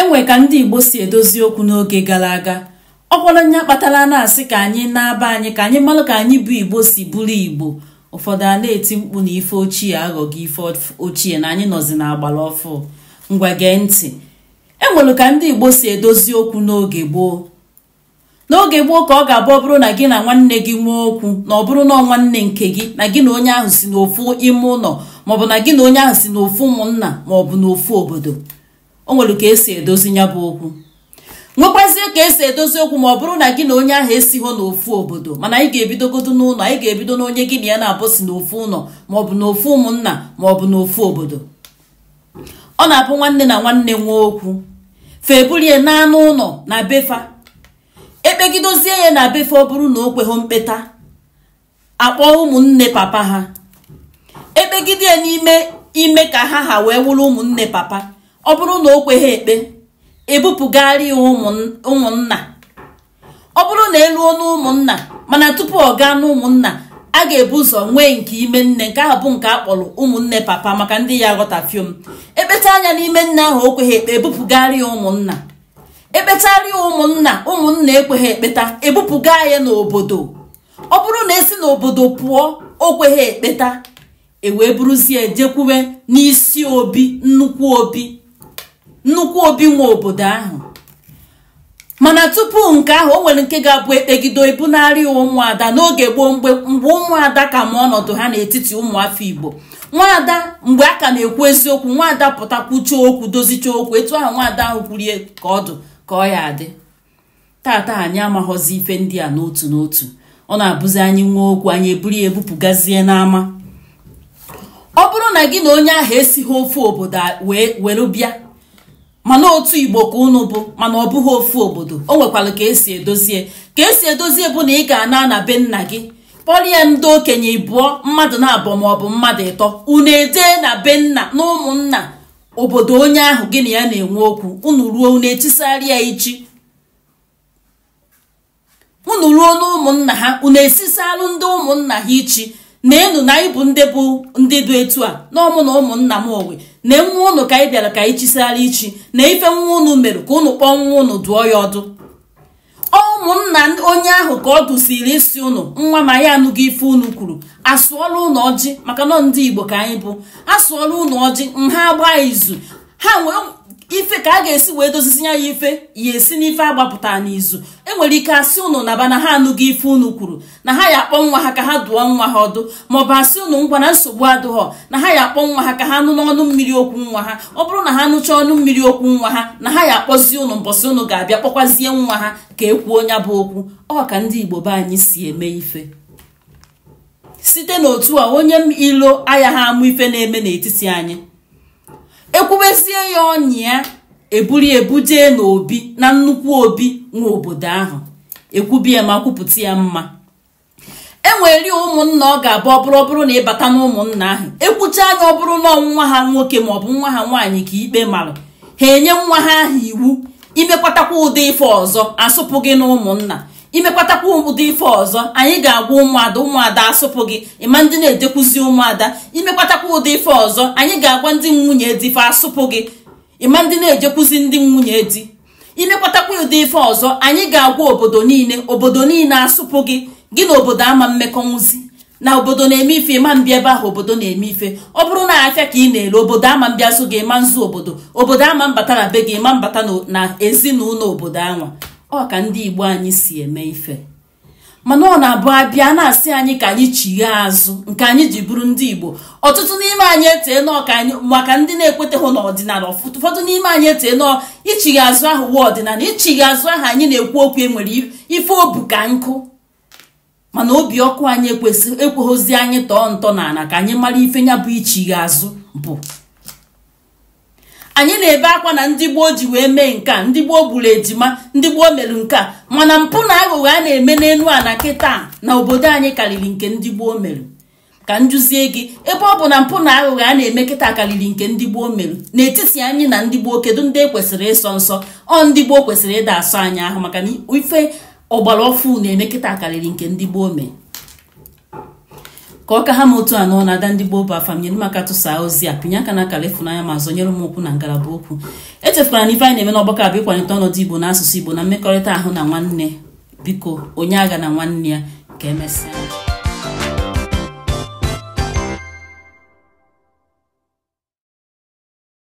enwe ka ndị igbo si edozi okwu n'oge gara aga ọ kwara onye kpatara na-asị ka anyị na-aba anyị ka anyị mara ka anyị bụ igbo si bụrụ igbo ụfọdụ a na-eti mkpu na ife ochie aghọghị ife ochie na anyị nọzi agbara ọfụ ngwa gee ntị enwere ka ndị igbo si edozi okwu n'oge gboo n'oge gboo ka ọ ga-abụ ọ bụrụ na gị na nwanne gị nwee okwu na ọ bụrụ na nwanne nke gị na gị na onye ahụ si n'ofu ime ụlọ maọbụ na gị na onye ahụ si n'ofu ụmụnna maọbụ n'ofu obodo o nwere ka esi edozi ya bụ okwu nwekwazie ka esi edozi okwu ma ọ bụrụ na gị na onye ahụ esigho n'ofu obodo mana anyị ga-ebidogodo n'ụlọ anyị ga-ebido na onye gị na ya na-abụ n'ofu ụlọ maọbụ n'ofu ụmụnna maọbụ n'ofu obodo ọ na-abụ nwanne na nwanne nwee okwu febulie n'anụ ụlọ na befa ekpegidozie ya na befa ọ bụrụ na o kweghị mkpeta akpọ ụmụnne papa ha ekpegide ya n'ime ime ka ha ha wee wụrụ ụmụnne papa ọ bụrụ na o kweghị ekpe ebupụgharị ya ụmụnna ọ bụrụ na eluo n'ụmụnna mana tupu ọ gaa n'ụmụnna a ga-ebu ụzọ nwee nke ime nne nke ahụ bụ nke a kpọrọ ụmụnne papa maka ndị ya ghọtafiom ekpeta anya n'ime nne ahụ o kweghị ekpe ebupụgharị ya ụmụnna ekpetarị ya ụmụnna ụmụnna ekweghị ekpeta ebupụga ya n'obodo ọ bụrụ na esi n'obodo pụọ o kweghị ekpeta e wee buruzie e jekwuwe n'isi obi nnukwu obi nnukwu obi nwa obodo ahụ mana tupu nke ahụ o nwere nke ga-abụ ekpegido ibunarị ụmụada n'oge gboo mgbe ụmụada ka ma ọnọdụ ha n'etiti ụmụafọ igbo nwaada mgbe a ka na-ekwu eziokwu nwaada pụtakwuchie okwu dozichie okwu etu ahụ nwaada ahụ kwurie ka ọdụ ka ọ ya adị tata anyị amaghọzi ife ndị a n'otu n'otu ọ na-abụzi anyị nwa okwu anyị eburu ya ebupụgazie n'ama ọ bụrụ na gị na onye ahụ esighị ofu obodo wee were bịa mana otu igbo ka unu bụ mana ọ bụghị ofu obodo o nwekwara ka esi edozie ka esi edozie bụ na i ga-ana na be nna gị kpọrịa ndị okenye ịbụọ mmadụ na-abụọ ma ọ bụ mmadụ ịtọ unu edee na be nna na ụmụnna obodo onye ahụ gị ya na-enwe okwu unu ruo unu etisarị ichi unu ha unu ndị ụmụnna ha ichi na enu na anyị bụ ndị bụ ndị dị etu a n'ọmụ na ụmụnna m owe na nwa ụnụ ka anyị bịara ka anyị chisara ichi na ife nwa unu mere ka ụnụ kpọọ nwa unu dụọ ya ọdụ ụmụnna onye ahụ ka ọ dụsiri isi ụnụ nwa ma ya anụghị ife ụnụ kwuru asụọla unu ọjị maka nọ ndị igbo ka anyị bụ asụọla unu ọjị nha gbaa izu ha wee ife ka a ga-esi wee dozizi ya ife ya esi n'ife agbapụta n'izu enwere ike asị unu naba na ha anụghị ife unu kwuru na ha ya akpọ nwa ha ka ha dụọ nwa ha ọdụ maọbụ asị unu ngwa na nsogbu adụghọ na ha ya akpọ nwa ha ka ha nụ n'ọnụ mmiri okwu nwa ha ọ bụrụ na ha nụchaa ọnụ mmiri okwu nwa ha na ha ya akpọzie unu mbọsị unu ga-abịa kpọkwazie nwa ha ka ekwuo ya bụ okwu ọ ka ndị Igbo be anyị si eme ife site n'otu a onye ilo aya ha amụ ife na-eme n'etiti anyị ekwubesie ya ọnya ya eburu n'obi na nnukwu obi nwa obodo ahụ ekwubie ma kwupụta ya mma enwere ụmụnna ọ ga-abụ ọbụrụ ọbụrụ na ịbata na ụmụnna ahụ ekwucha anya ọ bụrụ na nwa ha nwoke maọbụ nwa ha nwaanyị ka ikpe marụ ha enye nwa ha ahụ iwu imekwatakwa ụdị ife ọzọ asụpụ gị na ụmụnna imekwatakwa ụdị ife ọzọ anyị ga-agwa ụmụada ụmụada asụpụ gị ịma ndị na-edekwuzi ụmụada imekwatakwa ụdị ife ọzọ anyị ga-agwa ndị nwunye di ife asụpụ gị ịma ndị na-ejekwuzi ndị nwunye di imekwatakwa ụdị ife ọzọ anyị ga-agwa obodo niile obodo niile asụpụ gị gị na obodo ama mmekọ nwụzi na obodo na-eme ife ịma mbịa ebe ahụ obodo na-eme ife ọ bụrụ na afịa ka ị na-ere obodo ama mbịa so gị ịma nzu obodo obodo ama mbata na be gị ịma mbata na ezinụlọ obodo anwa ọ ka ndị Igbo anyị si eme ife mana ọ na-abụ abịa na-asị anyị ka anyị chighe azụ nke anyị ji bụrụ ndị Igbo ọtụtụ n'ime anyị etee maka ndị na-ekweteghị n'ọdịnala ụfọdụ n'ime anyị etee nọ ichighe azụ ahụ wee ọdịnala ichighe azụ ahụ anyị na-ekwu okwu enwere ife obu ka nkụ mana obi ọkụ anyị ekweghịzi anyị tọọ ntọ n'ala ka anyị mara ife nya bụ ichighe azụ bụ anyị na-ebe akwa na ndị gboo ji wee mee nke ndị gboo gburu ejima ndị gboo merụ nke mana mpụ na aghụghọ a na-eme n'elu ala kịta na obodo anyị karịrị nke ndị gboo merụ ka njuzie gị ebe ọ bụ na mpụ na aghụghọ a na-eme kịta karịrị nke ndị gboo merụ n'etiti anyị na ndị gboo kedu ndị ekwesịrị ịsọ nsọ ọ ndị gboo kwesịrị ịda asọ anyị ahụ maka na ife ọgbara ọfụ na-eme kịta karịrị nke ndị gboo mere ka ọka ha ma otu anọ na-ada ndị gboo bụ afam nyere m aka tụsaa ozi a pinye aka na akara ma zọnyere m okwu na ngalaba okwu echefukwara na ife anyị na-eme n'ọgbakọ abụ ịkwalite ọnọdụ igbo na asụsụ igbo na mmekọrịta ahụ na nwanne biko onye agha na nwanne ya ka emesịa